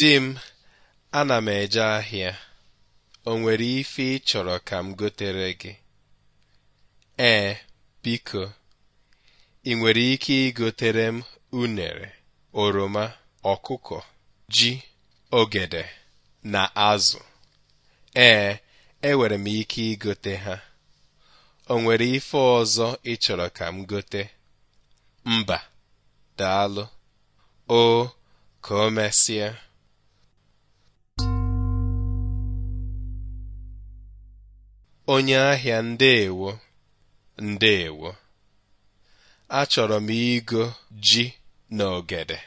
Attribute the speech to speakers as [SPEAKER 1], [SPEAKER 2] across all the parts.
[SPEAKER 1] Di m ana m eje ahịa o nwere ife ị ka m gotere gị ee biko ị nwere ike igotere m unere oroma ọkụkọ ji ogede na azụ ee enwere m ike igote ha o nwere ife ọzọ ịchọrọ ka m gote mba daalụ o ka o mesịa onye ahịa ndeewo ndeewo achọrọ m igo ji na ogede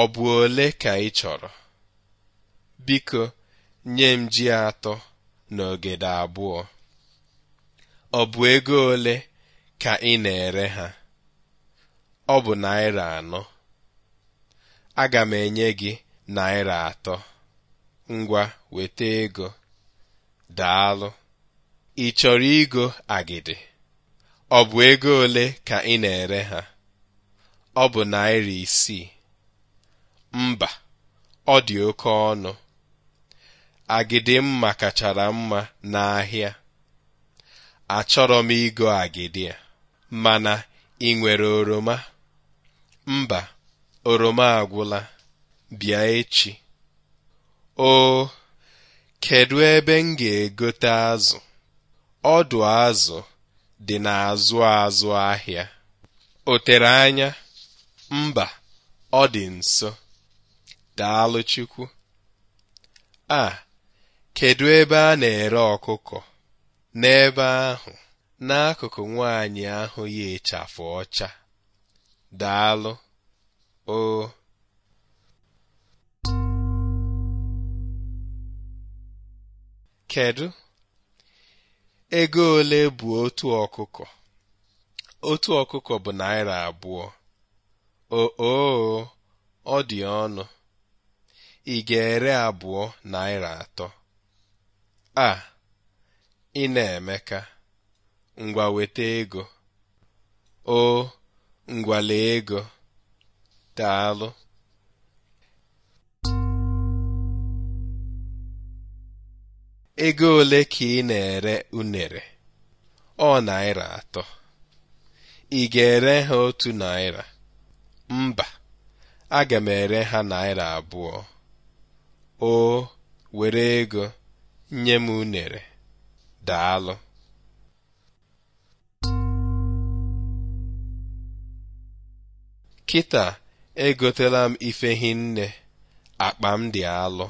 [SPEAKER 1] ọ bụ ole ka ị chọrọ biko nye m ji atọ na ogede abụọ ọ bụ ego ole ka ị na-ere ha ọ bụ naira anọ aga m enye gị naira atọ ngwa weta ego daalụ Ị chọrọ igo agidi? Ọ bụ ego ole ka ị na-ere ha? Ọ bụ Naira isii. Mba, ọ dị oke ọnụ. Agidi mma kachara mma n'ahịa. Achọrọ m igo agidi a, mana ị nwere oroma? Mba, oroma agwụla. Bịa echi. Oo, kedụ ebe m ga-egote azụ? Ọdụ azụ dị n'azụ azụ ahịa. O tere anya? Mba, ọ dị nso. Daalụ Chukwu. A, kedụ ebe a na-ere ọkụkọ? N'ebe ahụ, n'akụkụ nwaanyị ahụ ya ịchafụ ọcha. Daalụ. O kedụ Ego ole bụ otu ọkụkọ? Otu ọkụkọ bụ naira abụọ. ooo ọ dị ọnụ. Ị ga-ere abụọ naira atọ? A, ị na-emeka. Ngwa weta ego. O, ngwale ego ego. Daalụ. ego ole ka ị na-ere unere ọ naira atọ ị ga-ere ha otu naira mba aga m ere ha naira abụọ o were ego nye m unere daalụ kịta egotela m ife hinne akpa m dị alụ